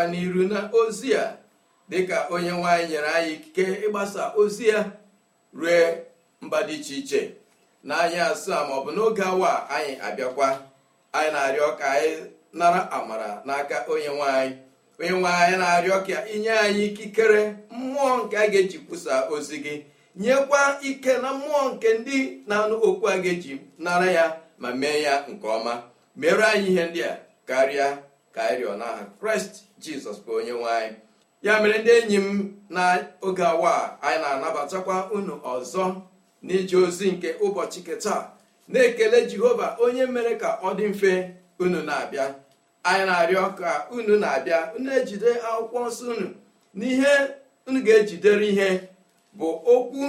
na n'iru na ozi a dịka onye nwanyị nyere anyị ikike ịgbasa ozi ya rue mba dị iche iche na anyị asaa maọbụ n'oge awa anyị abịakwa anyị na-arịọ ka anyị nara amara n'aka onye nwaanyị onye nwanyị na-arịọ ka inye anyị ikikere mmụọ nke a ga-eji kwusa ozi gị nyekwa ike na mmụọ nke ndị na-anụ okwu a ga-eji nara ya ma mee ya nke ọma mere anyị ihe ndị a karịa ka anyị rịọ n'aha kraịst jizọs bụ onye nwanyị ya mere ndị enyi m n'oge awa anyị na-anabatakwa unu ọzọ n'ije ozi nke ụbọchị nke na-ekele jehova onye mere ka ọ dị mfe unu na-abịa anyị na-arịọ ka unu na-abịa unu ejide akwụkwọ nsọ unu n'ihe unu ga-ejidere ihe bụ okwu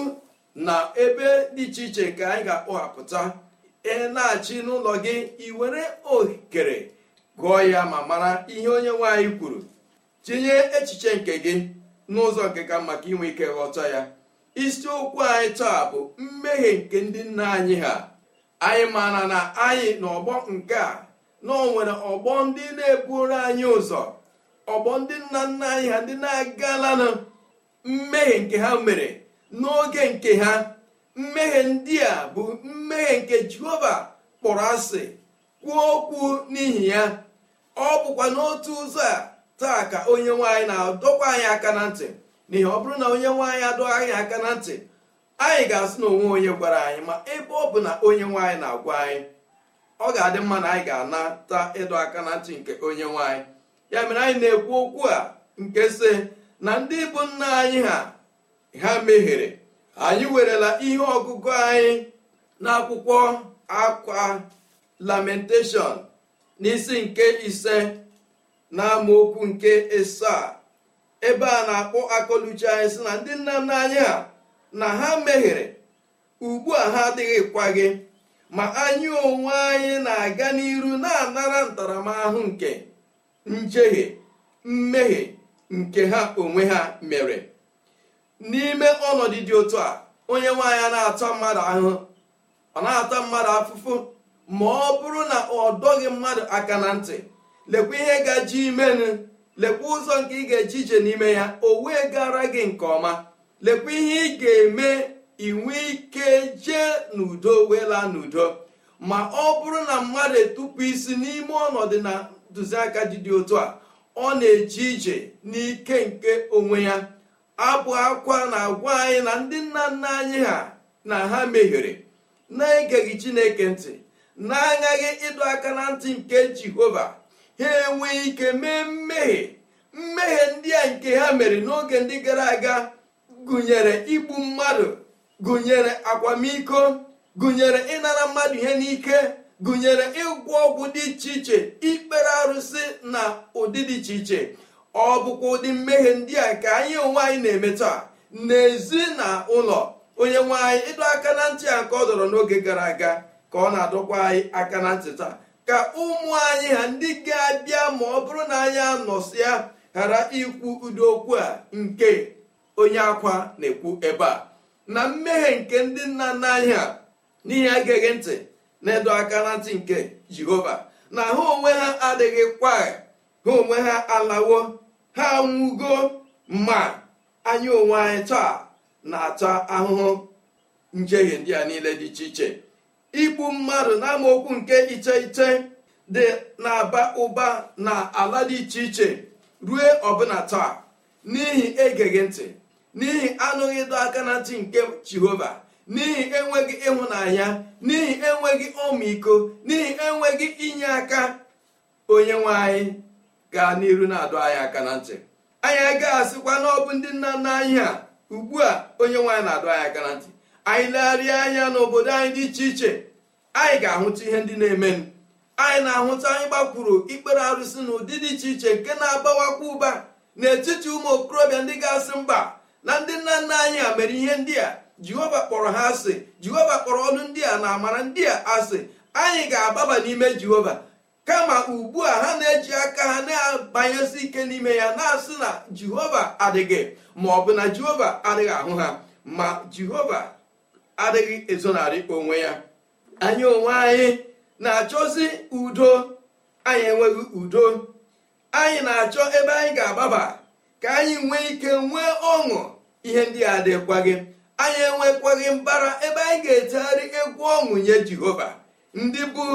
na ebe dị iche iche nke anyị ga-akpọghapụta na-achị n'ụlọ gị iwere okere gụọ ya ma mara ihe onye nwaanyị kwuru tinye echiche nke gị n'ụzọ nke ka maka inwe ike ghọta ya Isiokwu anyị taa bụ mmehie nke ndị nna anyị ha anyị maara na anyị n'ọgbọ nke a na o nwere ọgbọ ndị na-eburu anyị ụzọ ọgbọ ndị nna nna anyị ha ndị na-agalanụ mmehie nke ha mere n'oge nke ha mmehie ndị a bụ mmehie nke jehova kpọrọ asị kwuo okwu n'ihi ya ọ bụkwa n'otu ụzọ a taa ka onye nwaanyị na-adọkwa anyị aka na ntị n'ihi ọ bụrụ na onye nwaanyị adọghị anyị aka na ntị anyị ga-asị na onwe onye gwara anyị ma ebe ọ bụ na onye nwaanyị na-agwa anyị ọ ga-adị mma na anyị ga-anata ịdọ aka na ntị nke onye nwaanyị ya mere anyị na-ekwu okwu a nke sị na ndị bụ nna anyị ha ha mehiere anyị werela ihe ọgụgụ anyị n'akwụkwọ akwa lamentation n'isi nke ise na amaokwu nke a ebe a na-akpọ akọluchi anyị sị na ndị nna nna anyị a na ha meghere ugbu a ha adịghịkwa gị ma anyị onwe anyị na-aga n'iru na-anara ntaramahụhụ nke njehie mmehie nke ha onwe ha mere n'ime ọnọdụ dị otu a onye nwaanyị na-ata mmadụ ahụhụ ọ na-ata mmadụ afụfụ ma ọ bụrụ na ọ dọghị mmadụ aka na ntị lekwa ihe gaji imenụ lekwa ụzọ nke ị ga-eji ije n'ime ya o wee gara gị nke ọma lekwa ihe ị ga-eme inwe ike jee n'udo wee laa n'udo ma ọ bụrụ na mmadụ etupụ isi n'ime ọnọdụ na ntụziaka dị dị otu a ọ na-eji ije n'ike nke onwe ya abụ akwa na-agwa anyị na ndị nna nna anyị ha na ha mehiere na-egeghị chineke ntị na-agaghị ịdọ aka na ntị nke jehova ha enwee ike mee mmehie mmehie ndị a nke ha mere n'oge ndị gara aga gụnyere igbu mmadụ gụnyere akwamiko gụnyere ịnara mmadụ ihe n'ike gụnyere ịgwọ ọgwụ dị iche iche ikpere arụsị na ụdị dị iche iche ọ bụkwa ụdị mmehie ndị a ka anyị onwe anyị na-eme taa n'ezi na ụlọ onye nwe anyị ịdọ aka na ntị a ka ọ dọrọ n'oge gara aga ka ọ na-adọkwa anyị aka na ntị taa ka ụmụ anyị ha ndị ga-abịa ma ọ bụrụ na anyị anọsịa ghara ikwu ụdị okwu a nke onye akwa na-ekwu ebe a na mmehie nke ndị nna nna anyị ha n'ihi agaghị ntị na-edo aka na ntị nke jehova na ha onwe ha adịghị kwa ha onwe ha alawo ha nwugo ma anyị onwe anyị taa na-ata ahụhụ njehie ndị a niile dị iche iche igbu mmadụ n'amaokwu nke iche iche dị na-aba ụba na ala dị iche iche rue ọbụna taa n'ihi egeghị ntị n'ihi anụghị ịdọ aka na ntị nke jehova n'ihi enweghị ịhụnanya n'ihi enweghị ọmịiko n'ihi enweghị inye aka onye nwe anyị gaa n'iru na-adọ anyị aka na ntị anyị agaghị asịkwa na ọ bụ ndị nna nna anyị a ugbu a onye nwe anyị na-adọ anyị aka na ntị anyị legharịa anya n'obodo anyị dị iche iche anyị ga-ahụta ihe ndị na-emenụ anyị na-ahụta anyị gbakwuru ikpere arụsị na ụdị dị iche iche nke na-abawakwa ụba n'etiti ụmụ okorobịa ndị ga-asị mba na ndị nna nna anyị a mere ihe ndị a jehova kpọrọ ha asị jehova kpọrọ ọnụ ndị a na amara ndị a asị anyị ga-agbaba n'ime jehova kama ugbu a ha na-eji aka ha na-abanyesi ike n'ime ya na-asị na jehova adịghị ma ọ bụ na jehova adịghị ahụ ha ma jehova adịghị ezonarị onwe ya anyị onwe anyị na-achọzi udo anyị enweghị udo anyị na-achọ ebe anyị ga-agbaba ka anyị nwee ike nwee ọṅụ ihe ndị a dịkwaghị anyị enwekwaghị mbara ebe anyị ga-etegharị egwu ọṅụ nye jehova ndị bụ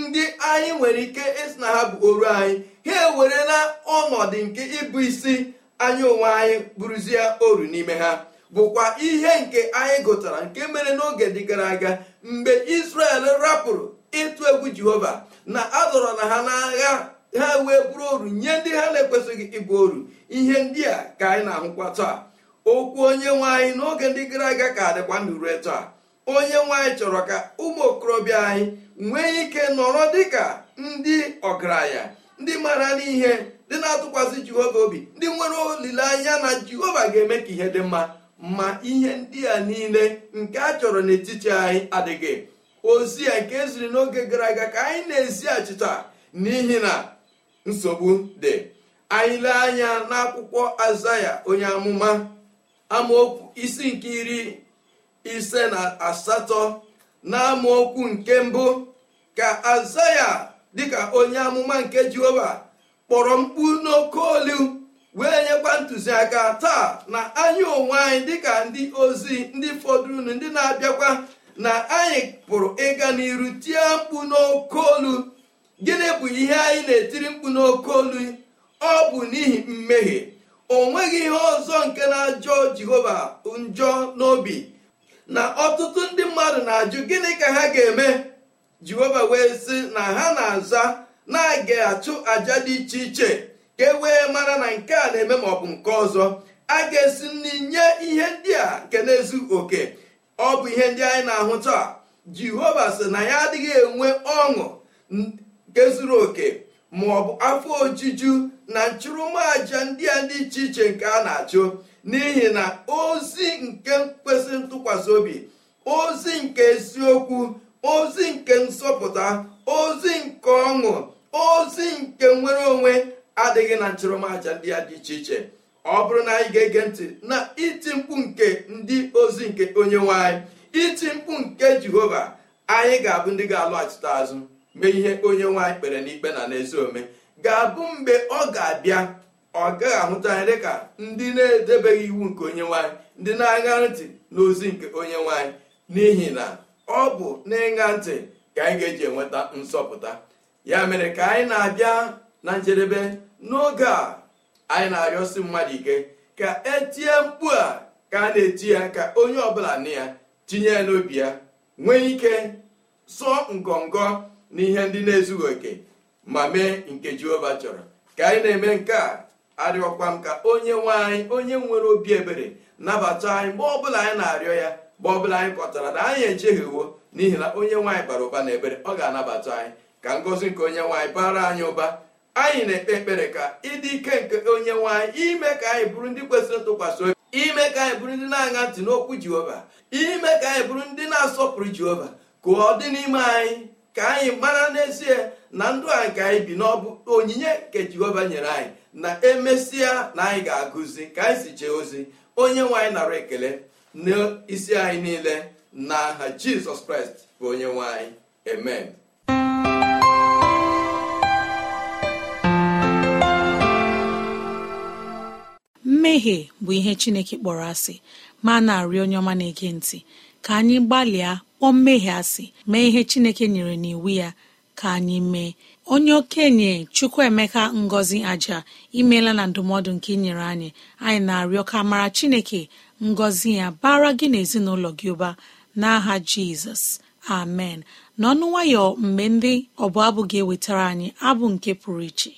ndị anyị nwere ike ịsị na ha bụ oru anyị ha ewerela ọnọdụ nke ịbụ isi anyị onwe anyị bụrụzie oru n'ime ha bụkwa ihe nke anyị gụtara nke mere n'oge dị gara aga mgbe israel rapụrụ ịtụ egwu jehova na a dọrọ na ha n'agha ha wee bụrụ oru nye ndị ha na-ekwesịghị ịbụ oru ihe ndị a ka anyị na-ahụkwa taa okwu onye nwaanyị n'oge ndị gara aga ka dịkwa ndụ rue taa onye nwaanyị chọrọ ka ụmụ okorobịa anyị nwee ike nọrọ dịka ndị ọgaranya ndị mara n'ihe ndị na-atụkwasị jehova obi ndị nwere olileanya na jehova ga-eme ka ihe dị mma ma ihe ndị a niile nke a chọrọ n'etiti anyị adịghị ozi ya nke eziri n'oge gara aga ka anyị na-ezi achịcha n'ihi na nsogbu dị anyị lee anya n'akwụkwọ azaya onye amụma amaokwu isi nke iri ise na asatọ na amaokwu nke mbụ ka azaya ka onye amụma nke jehova kpọrọ mkpu n'oke olu wee nyekwa ntụziaka taa na anyị onwe anyị dịka ndị ozi ndị fọdụrụnụ ndị na-abịakwa na anyị pụrụ ịga n'iru tie mkpu n'oke olu gịnị bụ ihe anyị na-etiri mkpu n'oke olu ọ bụ n'ihi mmehie o nweghị ihe ọzọ nke na-ajọ jehova njọ n'obi na ọtụtụ ndị mmadụ na-ajụ gịnị ka ha ga-eme jehova wee sị na ha na-aza na-aga achụ aja dị iche iche ka e wee mara na nke a na-eme ma ọ bụ nke ọzọ a ga-esi nri nye ihe ndị a nke na-ezu oke ọ bụ ihe ndị anyị na-ahụ taa jehova sị na ya adịghị enwe ọṅụ nke zuru oke ma ọ bụ afọ ojuju na nchụrụmàja ndị a dị iche iche nke a na-achụ n'ihi na ozi nke kwesịrị ntụkwasị obi ozi nke eziokwu ozi nke nsọpụta ozi nke ọṅụ ozi nke nwere onwe adịghị na nchụrụmaja ndị ya dị iche iche ọ bụrụ na anyị ga-ege ntị na iti mkpu nke ndị ozi nke onye nwanyị anyị iti mkpu nke jehova anyị ga-abụ ndị ga-alọghachite azụ mee ihe onye nwanyị anyị kpere n'ikpe na n'ezi ome ga-abụ mgbe ọ ga-abịa ọ gaghị ahụta anyị dịka ndị na-edebeghị iwu nke onye nwanyị anyị ndị na-aṅa ntị n'ozi nke onye nwanyị anyị n'ihi na ọ bụ n'ịṅa ntị ka anyị ga-eji enweta nsọpụta ya mere ka anyị na-abịa na njedebe n'oge a anyị na-arịọsi mmadụ ike ka etie mkpu a ka a na-eti ya ka onye ọbụla na ya tinye ya n'obi ya nwee ike sọ ngọngọ na ihe ndị na-ezughị oke ma mee nke jehova chọrọ ka anyị na-eme nke a arịọkwa m ka onye nwe anyị onye nwere obi ebere nabata anyị mgbe ọbụla anyị na-arịọ ya mgbe ọbụla anyị kọtara na anyị ejeghị uwo n'ihi na onye nwaanyị bara ụba na ebere ọ ga-anabata anyị ka ngọzi nke onye nwaanyị bara anyị ụba anyị na-ekpe ekpere ka ịdị ike nke onye nwe anyị ime ka anyị bụrụ ndị kwesịrị ntụkwasị obi ime ka anyị bụrụ ndị na-aṅa ntị n'okwu jehova ime ka anyị bụrụ ndị na-asọpụrụ jehova ka ọ dị n'ime anyị ka anyị mara n'ezie na ndụ a ka anyị bi n'ọbụ onyinye nke jehova nyere anyị na emesịa na anyị ga-agụzi ka anyị si jee ozi onye nwaanyị anyị nara ekele n'isi anyị niile n'aha jizọs kraịst bụ onye nwe anyị amen mmehie bụ ihe chineke kpọrọ asị ma na-arịọ onye ọma na-ege ntị ka anyị gbalịa kpọọ mmehie asị mee ihe chineke nyere n'iwu ya ka anyị mee onye okenye chukwuemeka ngọzi aja imela na ndụmọdụ nke inyere anyị anyị na-arịọ ka mara chineke ngọzi ya bara gị na ezinụlọ gị ụba n'aha jizọs amen n'ọnụ nwayọ mgbe ndị ọbụ abụ ga-ewetara anyị abụ nke pụrụ iche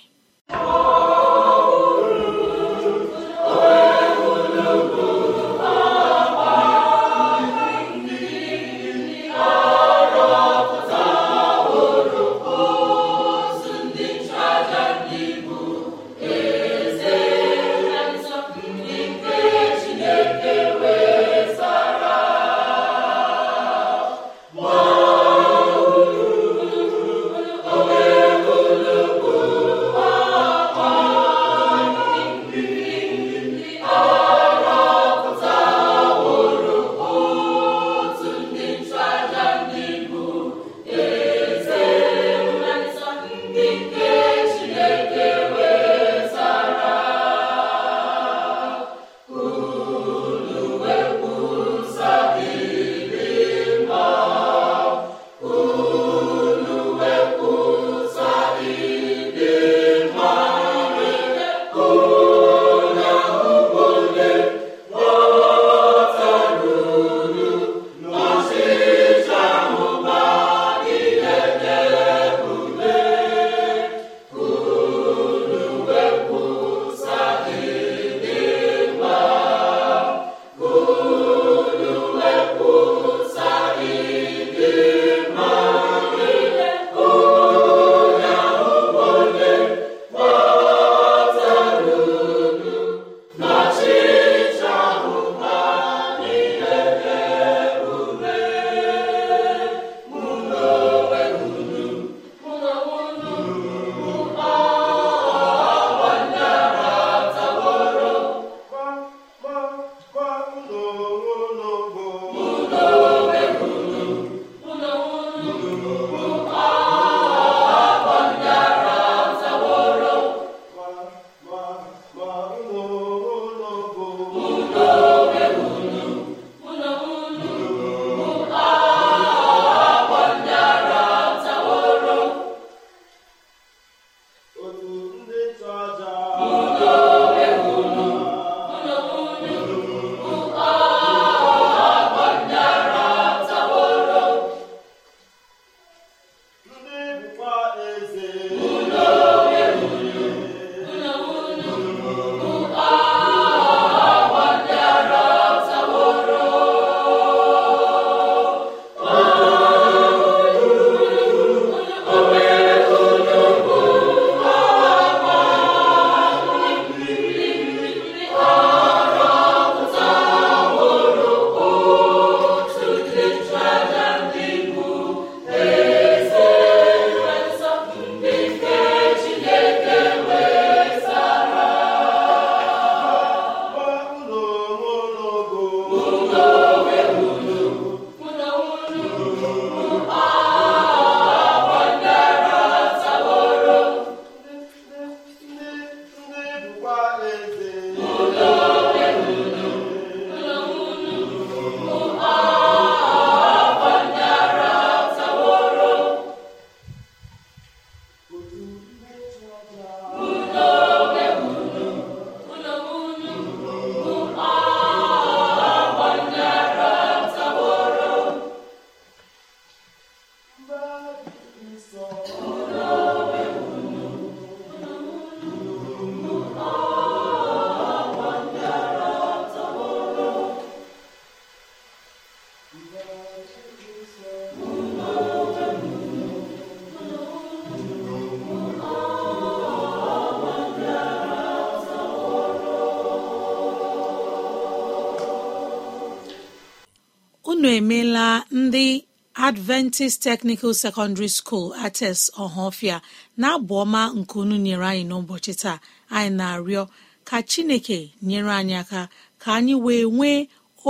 unu emeela ndị adventist technical secondary school ates ọhafia na abụ ọma nke unu nyere anyị n'ụbọchị taa anyị na-arịọ ka chineke nyere anyị aka ka anyị wee nwee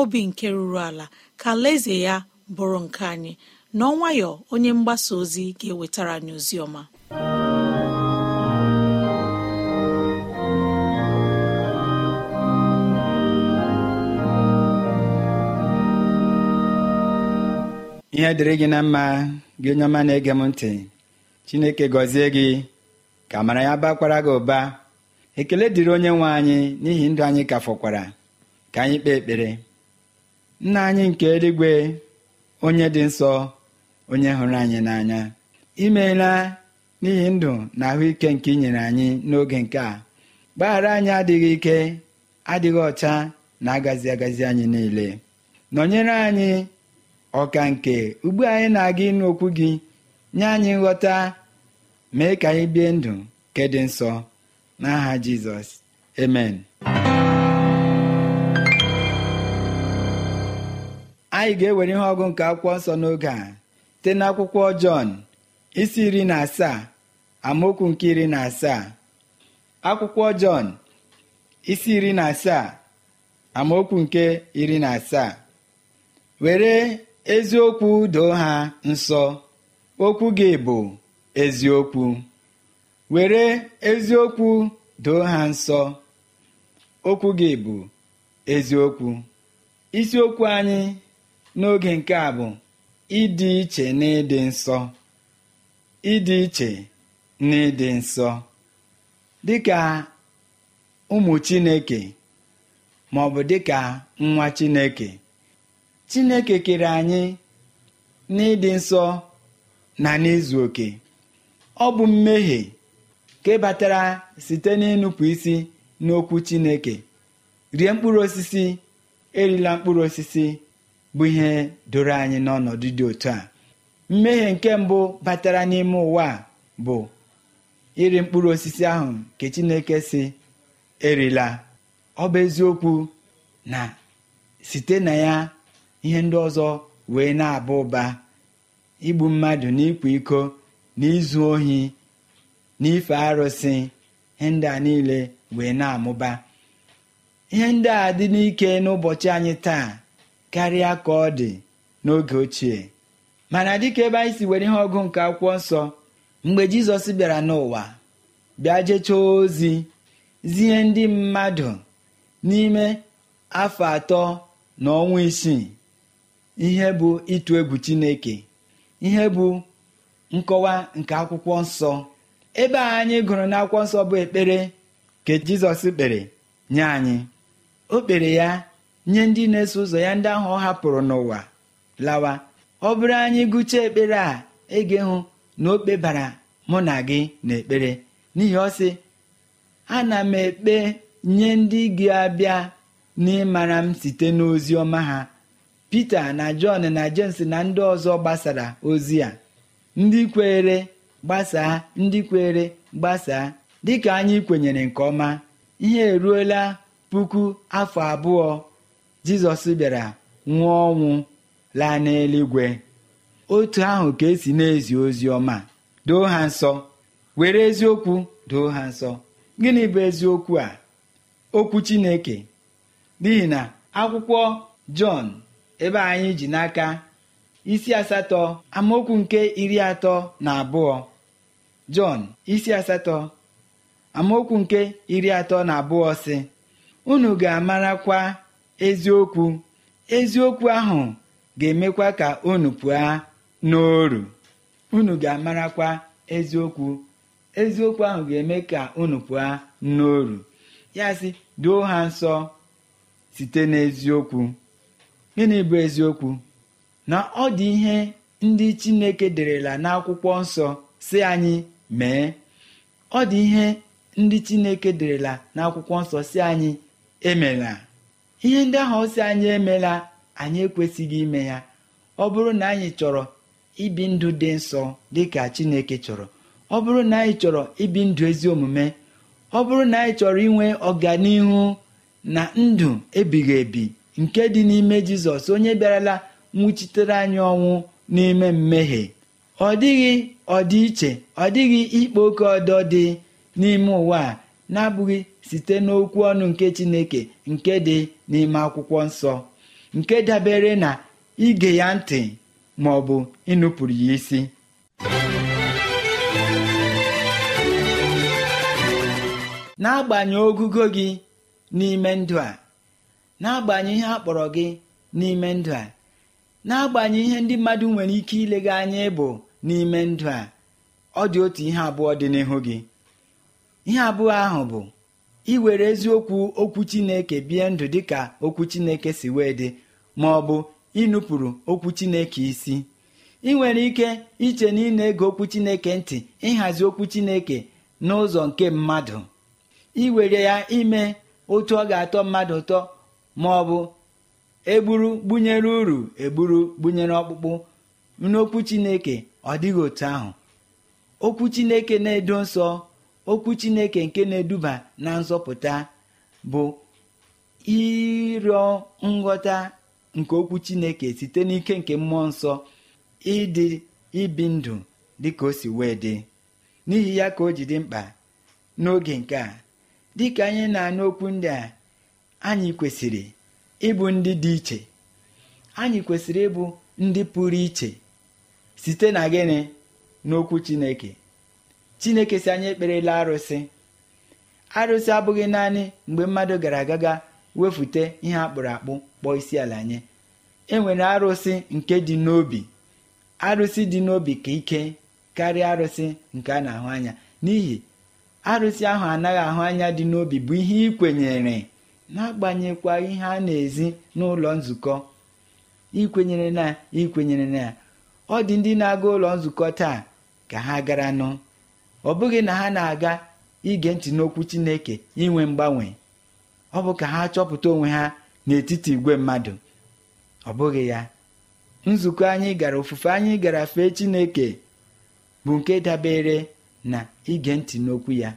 obi nke ruru ala ka leze ya bụrụ nke anyị n'ọnwayọ onye mgbasa ozi ga-ewetara anyị ọma. ihe dịrị gị na mma gị onye ọma na-ege m ntị chineke gọzie gị ka mara ya bakwara gị ụba ekele dịrị onye nwe anyị n'ihi ndụ anyị ka fọkwara ka anyị kpee ekpere nna anyị nke eluigwe onye dị nsọ onye hụrụ anyị n'anya imeela n'ihi ndụ na ahụike nke ị nyere anyị n'oge nke a gbaghara anyị adịghị ike adịghị ọcha na agazi agazi anyị niile nọnyere anyị ọka nke ugbu anyị na-aga ịnụ okwu gị nye anyị nghọta mee ka anyị bie ndụ nke dị nsọ n'aha jizọs amen anyị ga-ewere ihe ọgụ nke akwụkwọ nsọ n'oge a site n'akwụkwọ jọn isi iri na asaa amaokwu nke iri na asaa akwụkwọ jọn isi iri na asaa amaokwu nke iri na asaa were eziokwu doo ha nsọ okwu gị bụ eziokwu were eziokwu doo ha nsọ okwu gị bụ eziokwu isiokwu anyị n'oge nke a bụ ịdị iche na ịdị nsọ ịdị iche na ịdị nsọ dịka ụmụ chineke maọbụ dịka nwa chineke chineke kere anyị n'ịdị nsọ na n'izu oke ọ bụ mmehie nke batara site n'ịnụpụ isi n'okwu chineke rie mkpụrụ osisi erila mkpụrụ osisi bụ ihe doro anyị n'ọnọdụ dị otu a mmehie nke mbụ batara n'ime ụwa bụ iri mkpụrụ osisi ahụ nke chineke si erila ọ bụ eziokwu na site na ya ihe ndị ọzọ wee na-aba ụba igbu mmadụ n'ịkwa iko n'izu ohi n'ife ife arụsị ihe ndị a niile wee na-amụba ihe ndị a dị n'ike n'ụbọchị anyị taa karịa ka ọ dị n'oge ochie mana dịka ebe anyị si were ihe ọgụ nke akwụkwọ nsọ mgbe jizọs bịara n'ụwa bịa jechaa ozi zie ndị mmadụ n'ime afọ atọ na ọnwa isii ihe bụ ịtụ egwu chineke ihe bụ nkọwa nke akwụkwọ nsọ ebe a anyị gụrụ n'akwụkwọ nsọ bụ ekpere ka jizọs kpere nye anyị o kpere ya nye ndị na-eso ụzọ ya ndị ahụ ọ hapụrụ n'ụwa lawa ọ bụrụ anyị gụchaa ekpere a ege hụ na o kpebara mụ na gị n'ekpere n'ihi ọ sị ana m ekpe nye ndị gị abịa n'ịmara m site n'ozi ọma ha Pita na Jọn na Jems na ndị ọzọ gbasara ozi a ndị kweere gbasaa ndị kweere gbasaa dịka anyị kwenyere nke ọma ihe eruola puku afọ abụọ Jizọs bịara nwụọ ọnwụ laa n'eluigwe otu ahụ ka esi na-ezi ozi ọma doo ha nsọ were eziokwu doo ha nsọ gịnị bụ eziokwu a okwu Chineke n'ihi na akwụkwọ Jọn ebe anyị ji n'aka isi asatọ amaokwu nke iri atọ na abụọ Jọn isi asatọ amaokwu nke iri atọ na abụọ sị unu ga-amarakwa eziokwu eziokwu ahụ ga-emekwa ka unu pụọ n'oru unu ga-amarakwa eziokwu eziokwu ahụ ga-eme ka unu pụọ n'oru ya sị doo ha nsọ site n'eziokwu gịnị bụ eziokwu na ọ dị ihe ndị chineke derela n'akwụkwọ nsọ si anyị mee ọ dị ihe ndị chineke derela n'akwụkwọ nsọ si anyị emela ihe ndị ahụ si anyị emela anyị ekwesịghị ime ya ọ bụrụ na anyị chọrọ ibi ndụ dị nsọ dị ka chineke chọrọ ọ bụrụ na anyị chọrọ ibi ndụ ezi omume ọ bụrụ na anyị chọrọ inwe ọganihu na ndụ ebighị ebi nke dị n'ime jizọs onye bịarala nwuchitere anyị ọnwụ n'ime mmehie ọ dịghị iche, ọ dịghị ikpe oke ọdọ dị n'ime ụwa a na-abụghị site n'okwu ọnụ nke chineke nke dị n'ime akwụkwọ nsọ nke dabere na ige ya ntị ma ọ bụ ịnụpụrụ ya isi n'agbanyeghị ogugo gị n'ime ndụ a n'agbanyeghị ihe a kpọrọ gị n'ime ndụ a n'agbanyeghị ihe ndị mmadụ nwere ike ilega anya ịbụ n'ime ndụ a ọ dị otu ihe abụọ dị n'ihu gị ihe abụọ ahụ bụ iwere eziokwu okwu chineke bie ndụ dị ka okwu chineke si wee dị ma ọ bụ ịnụpụrụ okwu chineke isi ị nwere ike iche na ị na-ege okwu chineke ntị ịhazi okwu chineke n'ụzọ nke mmadụ iwere ya ime otu ọ ga-atọ mmadụ ụtọ ma ọ bụ egburu gbunyere uru egburu gbunyere ọkpụkpụ n'okwu chineke ọ dịghị otu ahụ okwu chineke na-edo nsọ okwu chineke nke na-eduba na nzọpụta bụ ịrịọ nghọta nke okwu chineke site n'ike nke mmụọ nsọ ịdị ibi ndụ dịka o si wee dị n'ihi ya ka o ji dị mkpa n'oge nke a dịka anyị na-anụ okwu ndị a anyị kwesịrị ịbụ ndị dị iche anyị kwesịrị ịbụ ndị pụrụ iche site na gịnị n'okwu chineke chineke si anyị ekperela arụsị arụsị abụghị naanị mgbe mmadụ gara agaga wefute ihe akpụrụ akpụ kpọọ isi ala nye enwere arụsị nke dị n'obi arụsị dị n'obi ka ike karịa arụsị nke a na-ahụ anya n'ihi arụsị ahụ anaghị ahụ anya dị n'obi bụ ihe ị kwenyere n'agbanyekwa ihe a na-ezi n'ụlọ nzukọ ikwenyere na ikwenyere na ọ dị ndị na-aga ụlọ nzukọ taa ka ha gara nụ ọ bụghị na ha na-aga ige ntị n'okwu Chineke inwe mgbanwe ọ bụ ka ha chọpụta onwe ha n'etiti igwe mmadụ ọ bụghị ya nzukọ anyị gara ofufe anyị gara fee Chineke bụ nke dabere na ige ntị n'okwu ya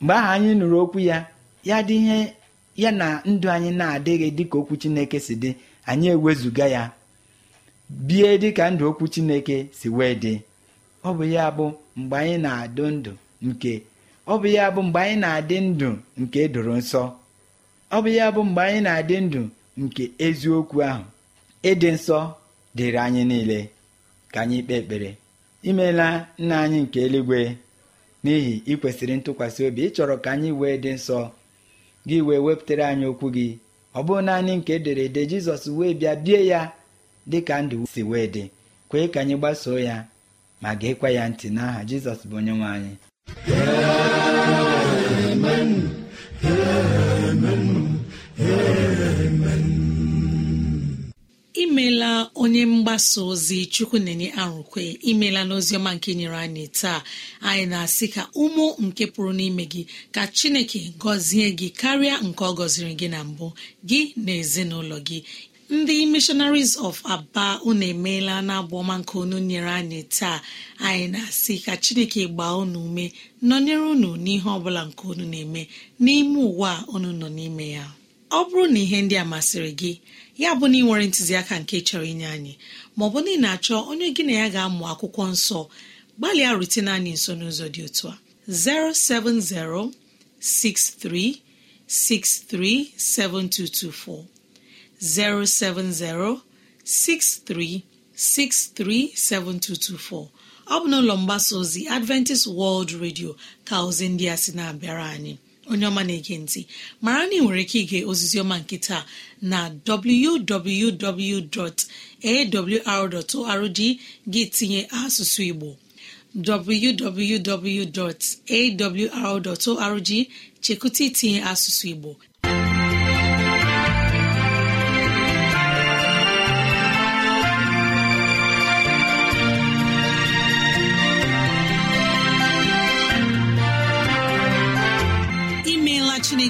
mgbe ahụ anyị nụrụ okwu ya ya dị ihe ya na ndụ anyị na-adịghị dịka okwu chineke si dị anyị ewezuga ya bie dịka ndụ okwu chineke si wee dị ọ bụ ya bụ mgbe anyị na-adụ ndụ nke ọ bụ ya bụ mgbe anyị na-adị ndụ nke edoro nsọ ọ bụ ya bụ mgbe anyị na-adị ndụ nke eziokwu ahụ ịdị nsọ dịrị anyị niile ka anyị kpee ekpere imeela nna anyị nke eluigwe n'ihi ikwesịrị ntụkwasị obi ịchọrọ ka anyị wee dị nsọ gị wee wepụtara anyị okwu gị ọ bụrụ naanị nke edere ede jizọs wee bịa bie ya dị ka ndụ si wee dị kwee ka anyị gbasoo ya ma ga-ekwe ya ntị n'aha jizọs bụ onye nwe anyị imeela onye mgbasa ozi chukwu na-enye arụkwe imeela n'oziọma nke nyere anyị taa anyị na-asị ka ụmụ nke pụrụ n'ime gị ka chineke gọzie gị karịa nke ọ gọziri gị na mbụ gị na ezinụlọ gị ndị missionaries of aba unu emeela na ọma nke unu nyere anyị taa anyị na-asị ka chineke gbaa unu ume nọnyere unu n'ihe ọbụla nke unu na-eme n'ime ụwa unu nọ n'ime ya ọ bụrụ na ihe ndị a masịrị gị ya bụ na ị nwere ntụziaka nke chọrọ inye anyị ma ọ bụ na ị na-achọ onye gị na ya ga-amụ akwụkwọ nsọ gbalịa rutene anyị nso n'ụzọ dị otu a 07063637224 ọ bụ n'ụlọ mgbasa ozi Adventist World Radio ka ozi ndị a sị na-abịara anyị onye ọma na-ege ntị mara na ị nwere ike ige ozizioma nke taa na www.awr.org gị tinye asụsụ Igbo www.awr.org chekụta itinye asụsụ Igbo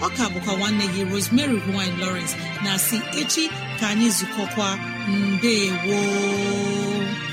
ọ ka bụkwa nwanne gị Rosemary gine Lawrence na si echi ka anyị zukọkwa mbe woo